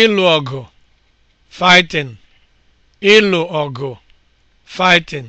ịlụ ọgụ fighting ịlụ ọgụ fighting